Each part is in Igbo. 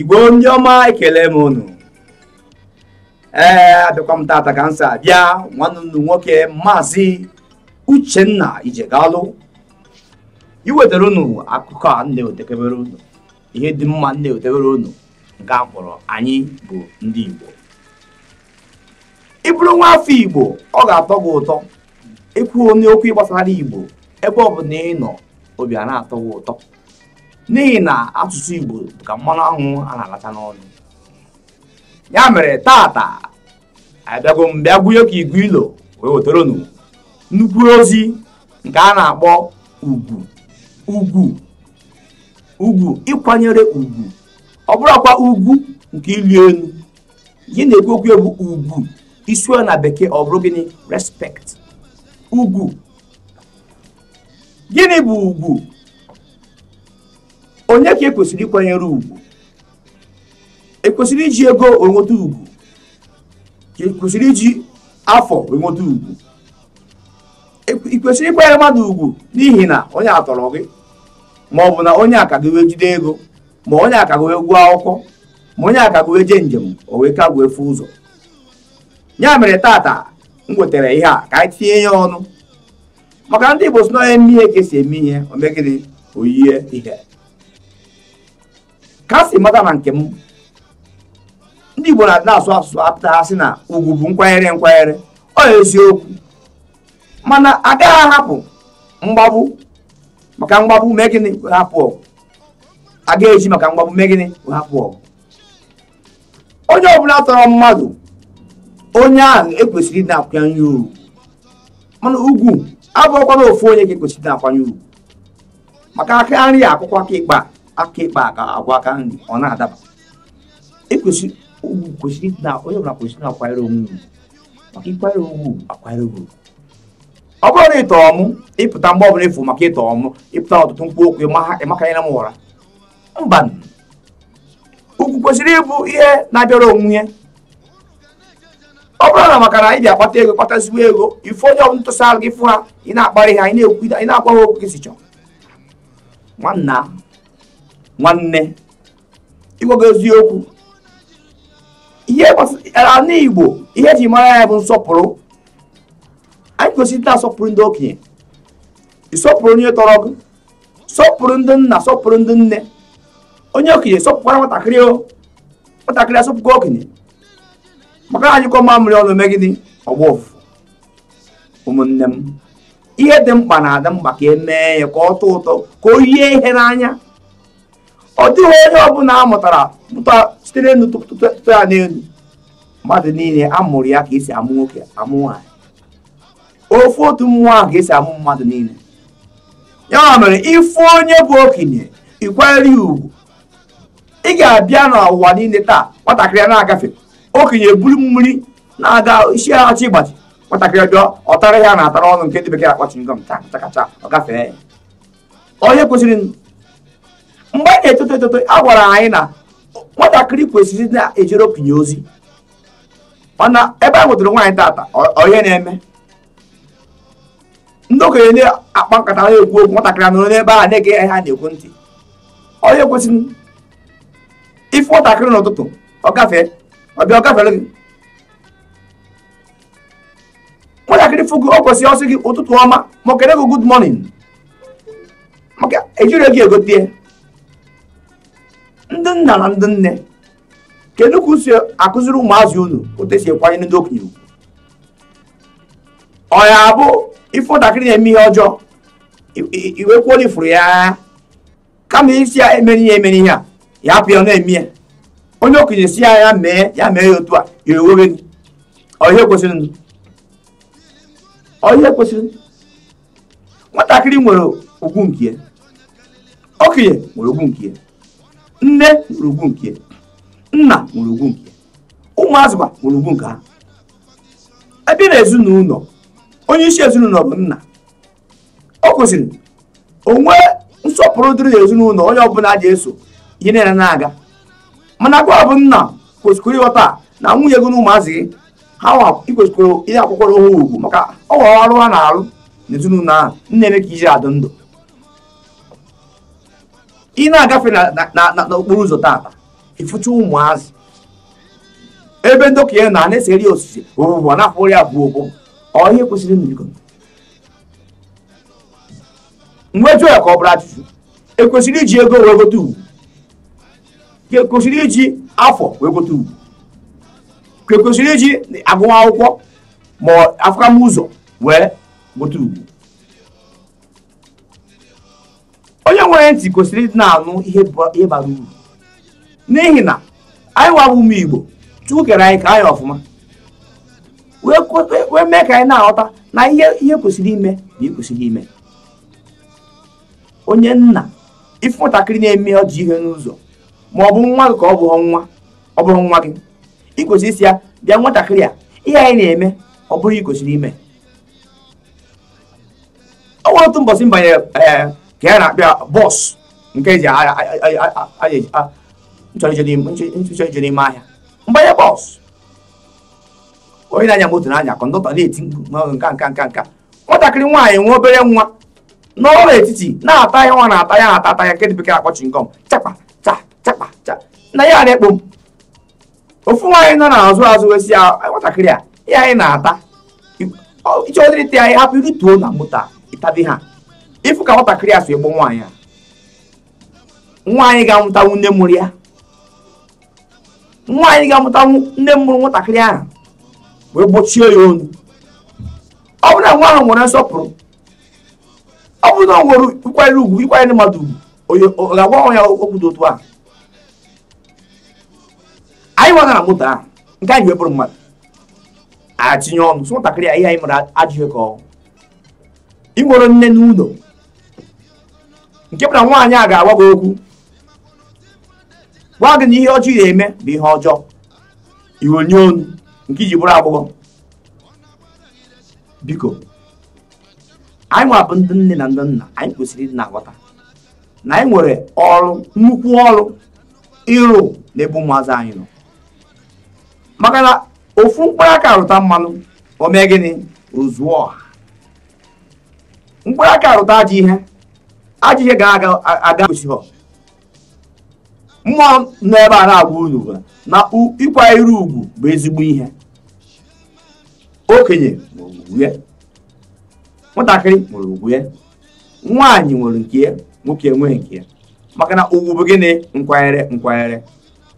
igbo ndị ọma ekele m unu ee abịakwa m tata ka m si abịa nwanne nwoke maazị uchenna ijegalụ iwetara unu akụkọ a na-edebere unu ihe dị mma na-edebere unu nke a kpọrọ anyị bụ ndị igbo ị bụrụ nwa afọ igbo ọ ga-atọ gị ụtọ ịkwụ onye okwu gbasara igbo ebe ọ bụ na ị nọ obi a na-atọ gị ụtọ n'ihi na asụsụ Igbo ka mmanụ anwụ a na-alacha n'ọnụ ya mere tata abịago m bịa gwunye ka igu ilo wee wetara nnukwu ozi nke a na-akpọ ugwu ugwu ugwu ịkwanyere ugwu ọ bụrụkwa ugwu nke ịlụ elu gị na-ekwu okwu egwu ugwu isi na bekee ọ bụrụ gịnị ugwu gịnị bụ ugwu onye ka ekwesịrị ịkwanyere ugwu ekwesịrị iji ego enweta ugwu ka ekwesịrị iji afọ enweta ugwu e ị kwesịrị ịkwanyere mmadụ ugwu n'ihi na onye atọrọ gị ma ọ bụ na onye aka gị wee jide ego ma onye aka gị wee gụọ akwụkwọ ma onye aka gị wee jee njem o wee ka gbuo efu ụzọ ya mere tata m wetara ihe a ka anyị tinye ya ọnụ maka ndị Igbo si na onye e eme ihe ka esi eme ihe omegịrị oyie ihe ka a si mata na nke m ndị Igbo na-asụ asụsụ apụta ha sị na ugwu bụ nkwanyere nkwanyere ọ eziokwu mana agaghị ahapụ mgbagbu maka mgbagbu mee gịnị hapụ ọgụ agaghị eji maka mgbagbu mee gịnị hapụ ọgụ onye ọbụla tọrọ mmadụ onye ahụ ekwesịrị ịna-akwanye ugwu mana ugwu abụọkwana ofu onye ka ekwesịrị ịna-akwanye ugwu maka aka nri akwụkwọ aka ịkpa aka ịkpa aka agwa aka nri ọ na-adaba ekwesịrị ugwu kwesịrị na onye ọbụla kwesịrị na-akwanyere onwe ugwu maka ịkwanyere onwe ugwu akwanyere ugwu ọ bụrụ na ịtọrọ mụ ịpụta mgbe ọbụla efu maka ịtọrọ mụ ịpụta ọtụtụ mkpu okwu ịmakanyere m ụra mba ugwu kwesịrị ịbụ ihe na-abịara onwe ọ bụrụ na maka na ị bịa akpata ego kpatazigbo ego ife onye ọbụla ntụsa arụ gị fụ ha ị na-akparị ha ị na-ekwu ị na-agwa ha okwu gị si chọọ nwanna nwanne ịgwago eziokwu ihe e igbo ihe eji mara ya bụ nsọpụrụ anyị kwesịrị na-asọpụrụ ndị okenye ịsọpụrụ onye tọrọ gị sọpụrụ ndị nna sọpụrụ ndị nne onye okenye sọpụkwara nwatakịrị o nwatakịrị asọpụkwa okenye maka na anyị kọ mamịrị ọnụ megide ọgba ofufu ụmụnne m ihe dị mkpa na-adị mkpa ka e mee ya ka ọ tọọ ụtọ ka o yie ihe n'anya ọ dịghị onye ọbụla a mụtara pụta sitere n'elu tụtụ ya n'elu mmadụ niile amụrụ ya ka esi amụ nwoke amụ nwaanyị ofu otu mmụọ ahụ ka esi amụ mmadụ niile ya mere ịfụ onye bụ okenye ikwere ugwu ị ga-abịa n'ụwa niile taa nwatakịrị na-agafe okenye buru mmiri na-aga isi achị ịgbachi nwatakịrị bịa ọtara ya na-atara ọnụ nke ndị bekee akpọchi ngọm chakacha ọ gafee onye kwesịrị mgbe anyị e na-etoto etoto a gwara anyị na nwatakịrị kwesịrị na-ejere okenye ozi mana ebe a nwetara nwaanyị tata onye na-eme ndị okenye na-akpa nkata na-ekwu okwu nwatakịrị anụrụ n'ebe a na-ege ya ha na-ekwu ntị onye kwesịrị ife nwatakịrị n'ụtụtụ ọ gafee ọbịa ọ gafere gị nwatakịrị fụgụ o kwesịrị ọsị gị ụtụtụ ọma ma o kere gị good morning maka ejiri gị egote ndị nna na ndị nne kedu ka usi akụziri ụmụazị unu otu esi ekwanye ndị okenye ugwu ọ ya bụ ife ntakịrị na-eme ihe ọjọọ iwekwuola ifuru ya kama isi ya emere ihe emere ihe a ya apụ ya na-eme ya onye okenye si ya ya mee ya mee ya otu a ya ewewe gị ọhịa kwesịrị ọhịa kwesịrị nwatakịrị nwere ugwu nke ya okenye nwere ugwu nke ya nne nwere ugwu nke nna nwere ugwu nke ụmụazịkwa nwere ugwu nke ha ebe na ezinụlọ onye isi ezinụlọ bụ nna ọ kwụsịrị onwe nsọpụrụ dịrị ezinụlọ onye ọbụla ji eso ihe niile na-aga mana gwa bụ nna kwesịkwara ịghọta na nwunye gị na ụmụazị gị ha ikwesịkwara ihe akwụkwọrọ ha ugwu maka ọ ọrụ ha na-arụ n'ezinụlọ ahụ nna eme ka iji adị ndụ ị na-agafe n'okporo ụzọ taata ịfụcha ụmụazị ebe ndokịa na ana-eseri osisi ụbụbụ na-afụrị abụọ ụbụ ọ ihe kwesịrị mbigo mgbe ya ka ọ bụrụ ajụjụ ekwesịrị iji ego wee gote ugwu ka ekwesịrị iji afọ wee gote ugwu ka ekwesịrị iji agụmakwụkwọ ma ụzọ wee gote ugwu onye nwere ntị kwesịrị ịdị na-anụ ihe bara uru n'ihi na anyị wabụ ụmụ igbo chukwu kere anyị ka anyị ọfụma wee mee ka anyị na-aghọta na ihe ihe kwesịrị ime na ikwesịrị ime onye nna ife nwatakịrị na-eme ọjị ihe n'ụzọ ma ọ bụ nwa gị ka ọ bụghị nwa ọ bụghị nwa gị ị kwesịrị isi ya bịa nwatakịrị a ihe anyị na-eme ọ bụrụ ikwesịrị ime ọ nwere otu mbọchị mbanye banyere eh, ka ya na-akpịa bọs nke eji nchọrọ ije n'ime ahịa mgbanye bọs onye na-anya moto n'anya, kọndọta na-eti mkpu nka nka nka nka nwatakịrị nwaanyị nwa obere nwa n'ọrụ etiti na-ata ya nwa na-ata ya na-ata ata ya nke dị bekee akpọ chingom chakpa cha chakpa cha na ya na-ekpo m ofu nwaanyị nọ n'azụ azụ wesi ya nwatakịrị a ya anyị na-ata iche ọdịrịta anyị hapụ irituo na moto a ha ịfụ ka nwatakịrị asụ egbo nwaanyị a nwaanyị ga-amụtanwu nne mụrụ ya nwaanyị ga-amụtanwu nne mụrụ nwatakịrị ahụ wee gbochie ya onu ọ bụrụ na nwa ahụ nwere nsọpụrụ ọ bụrụ na ọ nwere ịkwanyere ugwu ịkwanyere mmadụ ugwu ọ ga-agwa ya okwu dị otu a anyị nwana na moto ahụ nke anyị wee bụrụ mmadụ a tinye ọnụ so nwatakịrị a ihe anyị mere ajụghị ka ọ ị nwere nne n'ụlọ nke bụ na nwaanyị a ga-agwa gị okwu gwa gị na ihe ọjọọ ị na-eme bụ ihe ọjọọ iwe onu nke iji bụrụ agbọghọ biko anyị nwabụ ndị nne na ndị nna anyị kwesịrị ịdị na-aghọta na anyị nwere ọrụ nnukwu ọrụ ịrụ ebu ụmụazị anyị nọ maka na ofu mkpụrụ aka rụta mmanụ o mee gịnị ozuo ọha mkpụrụ aka rụta ajọ ihe aji ga-aga gosihọ mmụọ nọ ebe a na-agwa unu na ịkwanyere ugwu bụ ezigbo ihe okenye ya nwatakịrị nwere ugwu ya nwaanyị nwere nke ya nwoke enweghị nke ya maka na ugwu bụ gịnị nkwanyere nkwanyere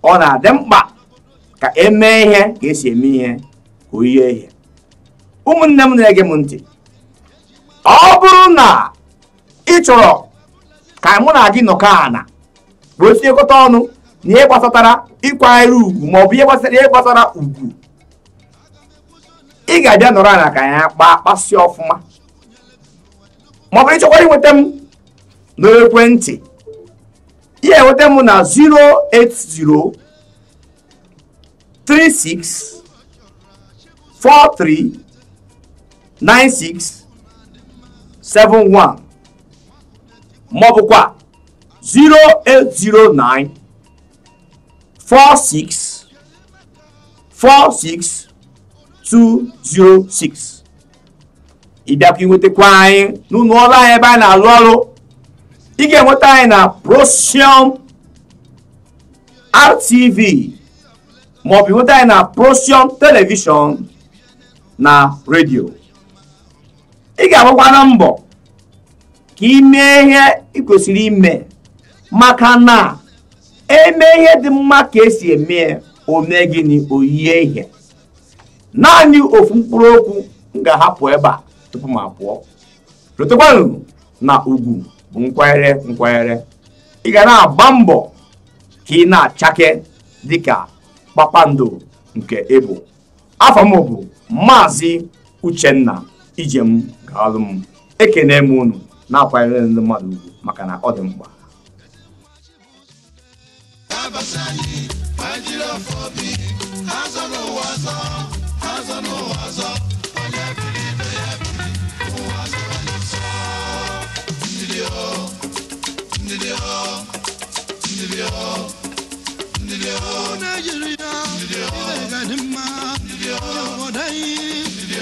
ọ na-adị mkpa ka emee ihe ka esi eme ihe ka oyi ihe ụmụnne m na-ege m ntị ọ bụrụ na ị chọrọ mụ na gị nọkọ ana wee tinyekọta ọnụ na ihe gbasatara ịkwanyere ugwu maọbụ ihe gbasara ihe gbasara ugwu ị ga-abịa nọrọ ala ka ya kpaa kpasịa ọfụma maọbụ ịchọkwara inweta m n'ekwentị ihe enweta m na 080 36 43 96 71 maọbụkwa 0809 46 46 206 ịbịakwa inwetakwa anyị n'ụlọ ọrụ anyị ebe anyị na-alụ ọrụ ị ga-enweta anyị na Procium RTV maọbụ inweta anyị na Procium telivishọn na redio ị ga-agbakwa na mbọ ka imee ihe ị kwesịrị ime maka na eme ihe dị mma ka esi eme ome gịnị oyie ihe naanị ofu mkpụrụ okwu m ga-ahapụ ebe a tupu m apụọ rotekwanụ na ugwu bụ nkwanyere nkwanyere ị ga na-agba mbọ ka ị na-achake dịka kpakpando nke ịbụ afọ m bụ maazị uchenna ijem gaalụ m ekene m unu na-akwanyere ndị mmadụ ugwu maka na ọ dị mkpa Nigeria, Nigeria, Nigeria, Nigeria, Nigeria,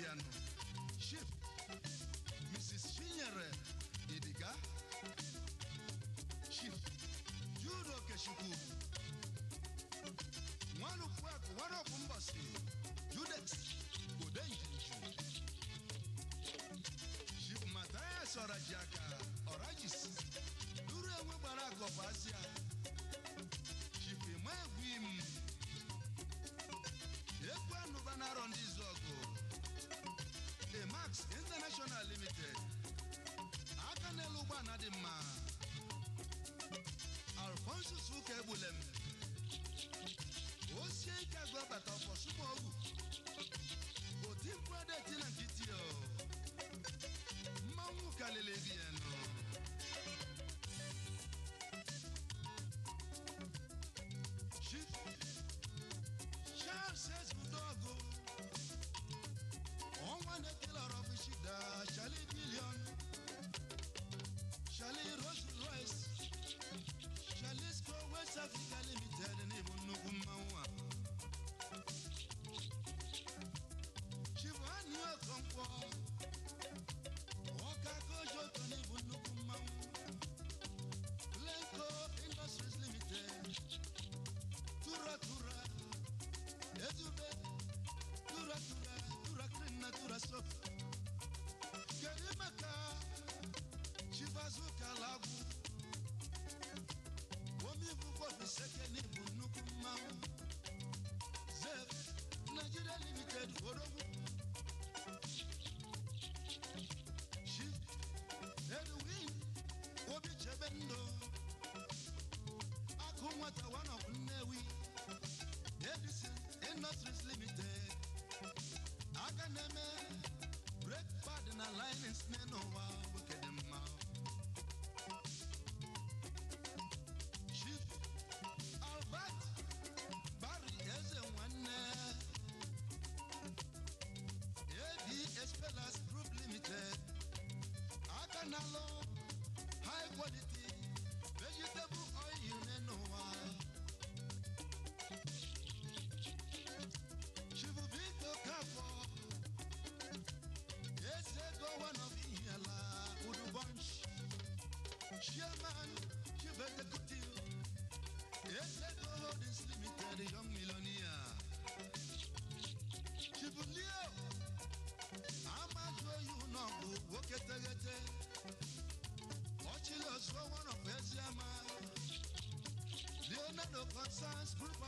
Otiano, Mrs. Shinyere, Idiga, Ship, Judo Keshukubu, Yeah, man, you better good deal. Yes, I know this limited young Milonia." Chibulio, I'm not sure you know who work at the gate. Watch it, so one of us, man. Leonardo Constance, good